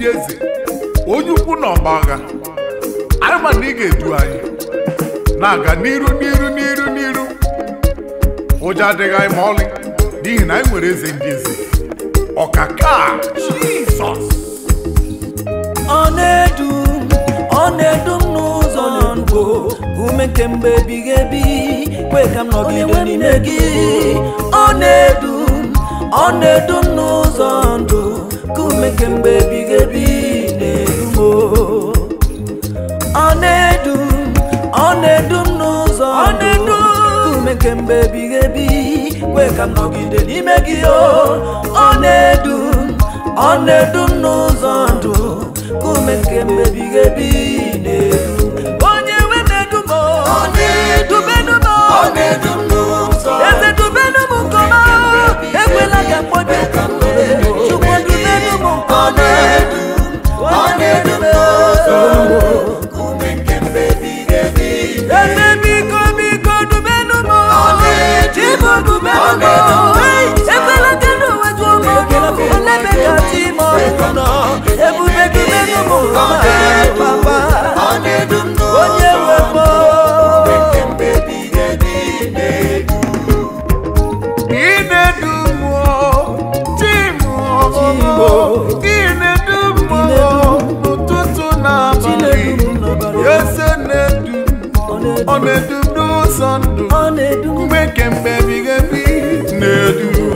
dị onye ukwu na ọgbagha anyị ma na ị ga-edu anyị na-aga n'iru n'iru n'iru n'iru ụjọ adịghị anyị ma ọlị n'ihi na anyị nwere eze ndị eze ọkaka Jizọs ọ edu ọ edu n'ụzọ ndụ ume nke ebighị ebi kwe ka m nọgide n'ime gị ọ na-edu ọ na-edu m n'ụzọ ndụ ome kemgbe ebighị ebi na-edu ọ na-edu ọ na-edu n'ụzọ ndụ kemgbe ebighị ebi kwe ka nọgide n'ime gị ọ na-edu ọ na-edu n'ụzọ ndụ ume kemgbe ebighị ebi onye nwe na-edu m na n'ụzọ na-edu m n'ụzọ ndụ mgbe kemgbe ebighị ebi na-edu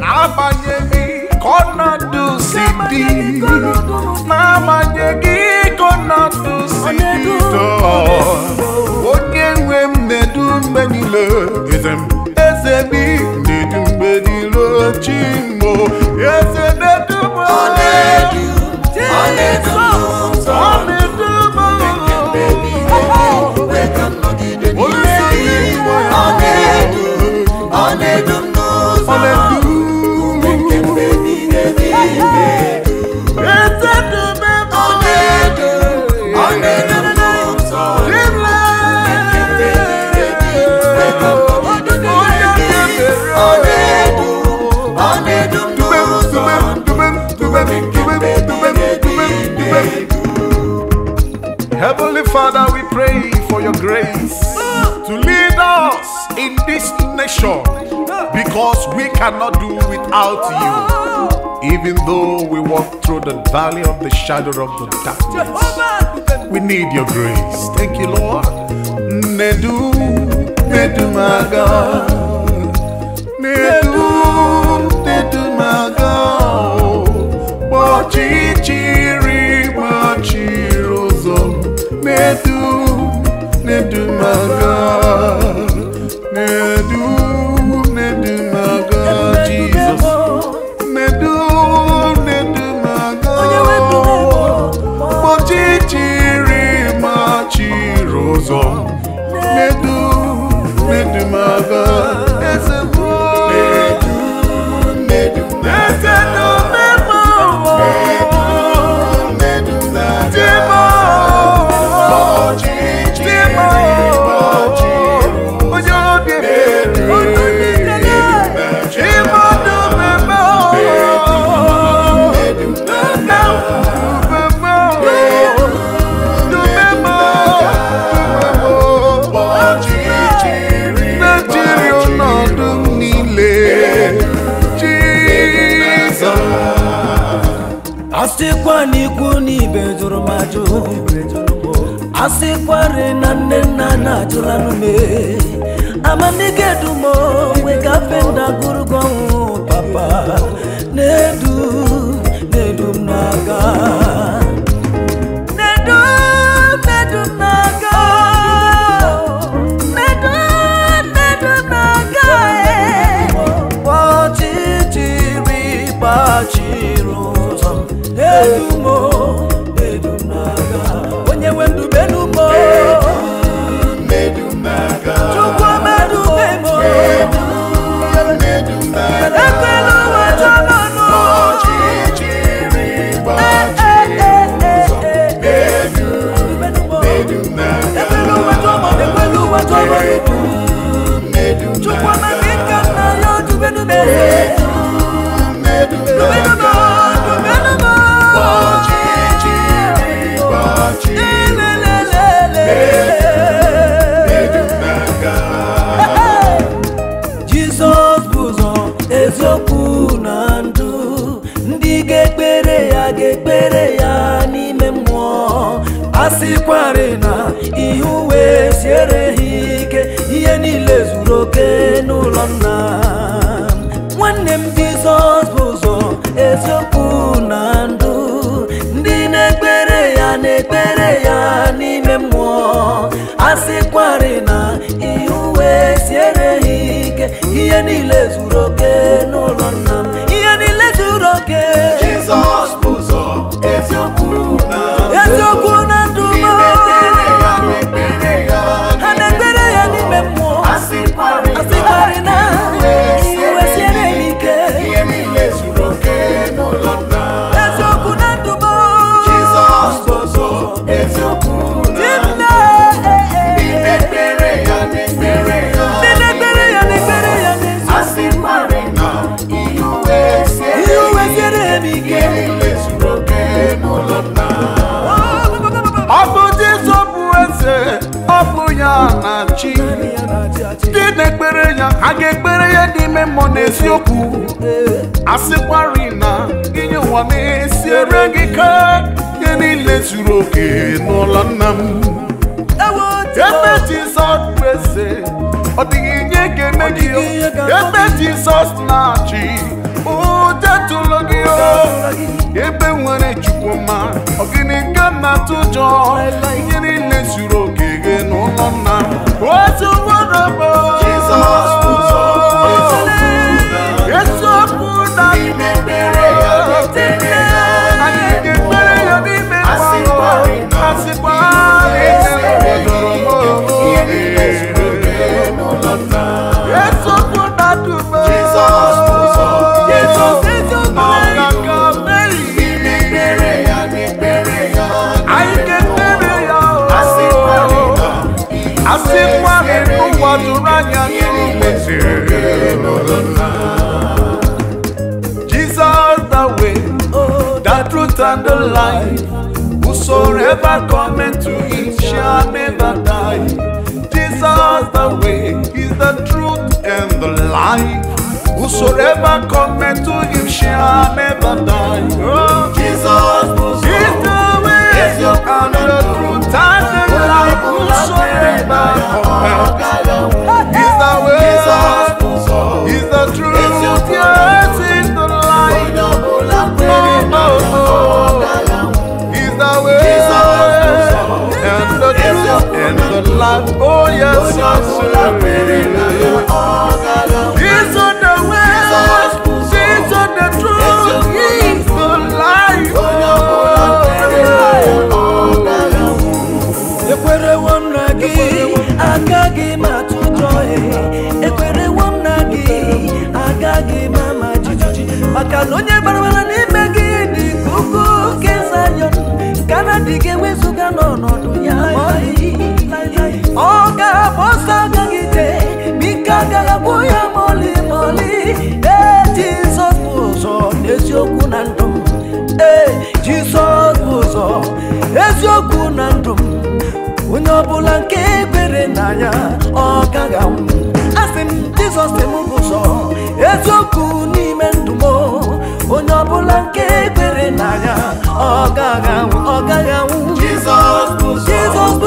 n'agbanyeghị ka ọnọdụ si dị n'agbanyeghị ka ọnọdụ si dị onye nwe m na-edu mgbe niile eze m eze m na-edu mgbe niile chi m eze Heavenly Father, we pray for your grace to lead us in this nation because we cannot do without you. Even though we walk through the valley of the shadow of the darkness, we need your grace. Thank you, Lord. Nedu, Nedu, my God. Nedu, Nedu, my God. Oh, Jesus. medo. ihe uwe siere ha ike ihe niile zuru oke n'ụlọ nna nwanne m jizọs bụ ụzọ eziokwu na ndụ ndị na-ekpere ya na-ekpere ya n'ime mmụọ asịkwari na ihe uwe siere ha ike ihe niile zuru okwu asịkwari na inye ụwa na ere gị ka ihe niile zuru oke n'ụlọ nna m ebe Jizọs eze ọ dịghị nye ga-eme gị ebe Jizọs na-achị ụdetụlụ gị ebe nwere Chukwuma ọ gịnị ka na-atụ ụjọ ihe niile zuru oke gị n'ụlọ nna m otu nwadabo Jizọs forever coming to him shall never die. Jesus the way is the truth and the life. Whosoever cometh to him shall never die. Oh, Jesus is the way is your and the truth and the life. Whosoever cometh is the way. life. Oh, oh yes, I say. ọ ga-agba ọsọ agagide bike agaghakwụ ya moli moli ee jizọs bụ ụzọ n'eziokwu na ndụ m ee jizọs bụ ụzọ eziokwu na ndụ m onye ọbụla nke ebere na ya ọ gaghị anwụ asị m jizọs bụ ụzọ eziokwu n'ime ọbụla nke kwere na ya ọ gaghị anwụ ọ gaghị anwụ Jizọs bụ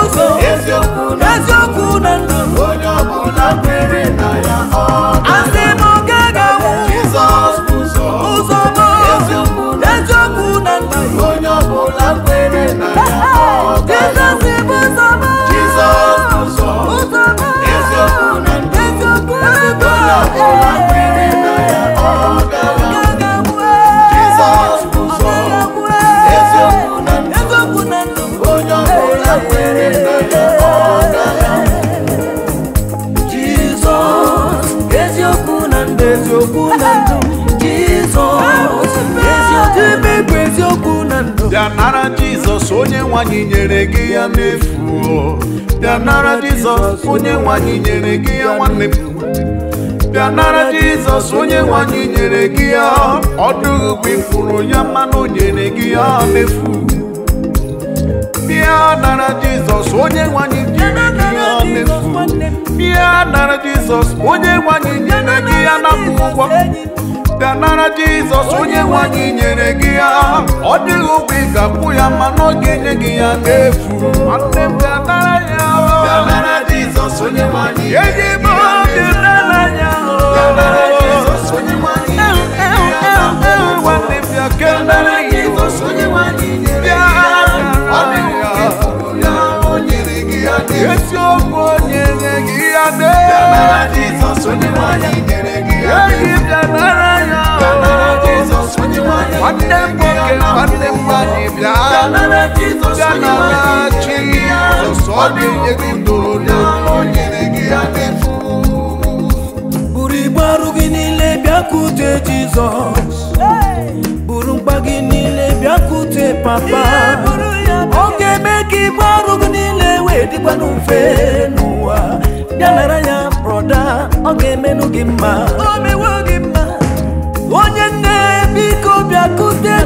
ụzọ eziokwu na ndụ onye ọbụla kwere na ya ọ bịa nara jizọs onye nwanyị nyere gị ya n'efu bịa nara jizọs onye nwanyị nyere gị ya nwanne bịa nara jizọs onye nwanyị nyere gị ya ọ dụghị ifuru ya mmanụ nyere gị ya n'efu bịa nara jizọs onye nwanyị nyere gị ya n'efu bịa nara jizọs onye nwanyị nyere gị ya na ụgwọ bịa nara jizọs onye nwanyị nyere gị ya ọ dịghị ụgwọ ị ga-akwụ ya mana ọ ga gị ya n'efu nwanne m ya onye nwe gị ya Esi okwu onye nye gị ya dee. Bịa nara Jizọs onye nwanyị nyere gị. nwanne m nwoke nwanne m nwanyị bịa bịa ya Jizọs ọ ga-enye gị n'olu o nyere gị ya n'efu buru igbe gị niile bịakute Jizọs buru mkpa gị niile bịakute papa ọ ga-eme ka igbe ọrụ gị niile wee dịkwa n'ofe n'ụwa bịa nara ya broda ọ ga-emenụ gị mma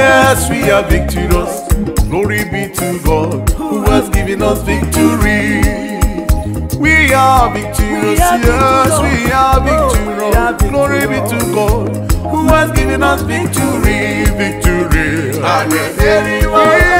Yes, we are victorious. Glory be to God who has given us victory. We are victorious. Yes, oh, we are victorious. Glory be to God who has given us victory. Victory. And everyone.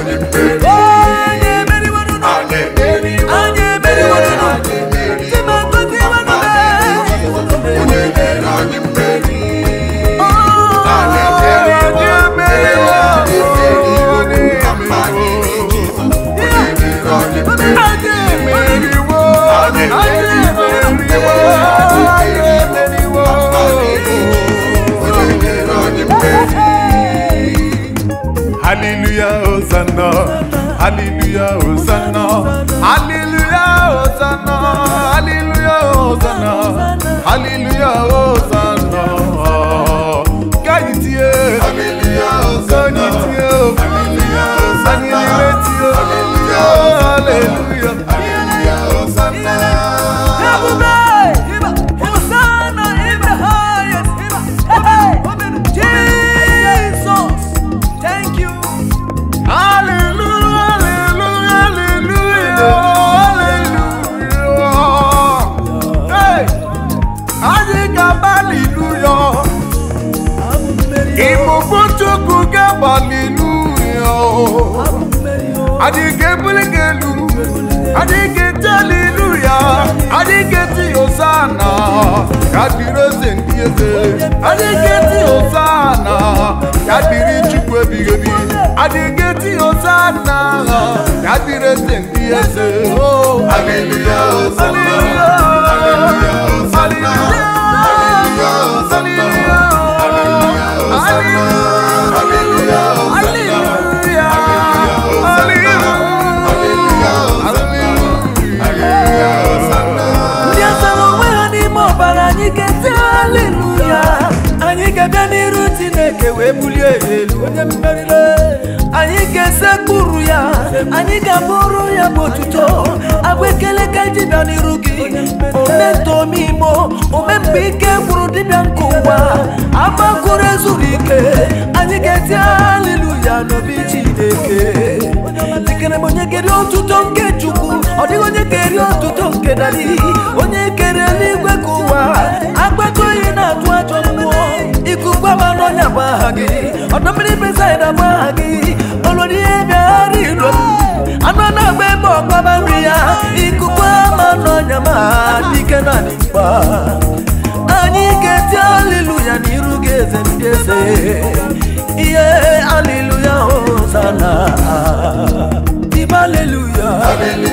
on your Hallelujah, Hosanna. Hallelujah, Hosanna. Hallelujah, Hosanna. Hallelujah, Hosanna. Káyìtì ẹ̀. Hallelujah, Hosanna. Sọ́ni tí ó. Hallelujah, Hosanna. Sani Hallelujah, Hosanna. Ogochukwu gabaliluya. Adike bulikelu, adike jaliluya, adike ti osana, kabiri eze ndị eze, adike ti osana, kabiri chukwu ebighị ebi, adike ti osana, kabiri eze ndị eze. Aleluya Hallelujah, aleluya Hallelujah, aleluya osana. ebulie elu onye mmerire anyị ga-esekpuru ya anyị ga-abụrụ ya bụ otuto agwa ekele ka dibịa n'iru gị ometomimo omemgbe ike gwuru dibịa nke ụwa agbakoro ezuru ike anyị ga-eti haleluya n'obi Chineke dikere m onye kere otuto nke Chukwu ọ dịghị onye eri otuto nke dali onye kere eluigwe ka ụwa agbakọ ihe na-atụ ikugba wa lọnya baagi ọdún mìíràn bẹsẹ ẹdá baagi olórí ẹbí arí ló anú ọdún agbẹ bọ ọgbà bá rí ya ikugba ma lọnya ma dikẹ náà ní gbà ànyí kẹtí aliluya ní irú gẹsẹ ní gẹsẹ iye aliluya ó sànà ìbá aliluya.